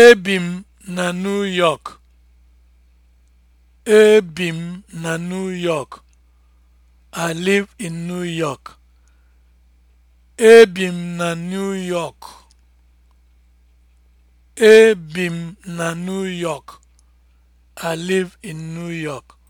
Ebi m na New York. Ebi m na New York. I live in New York. na New York. I live in New York.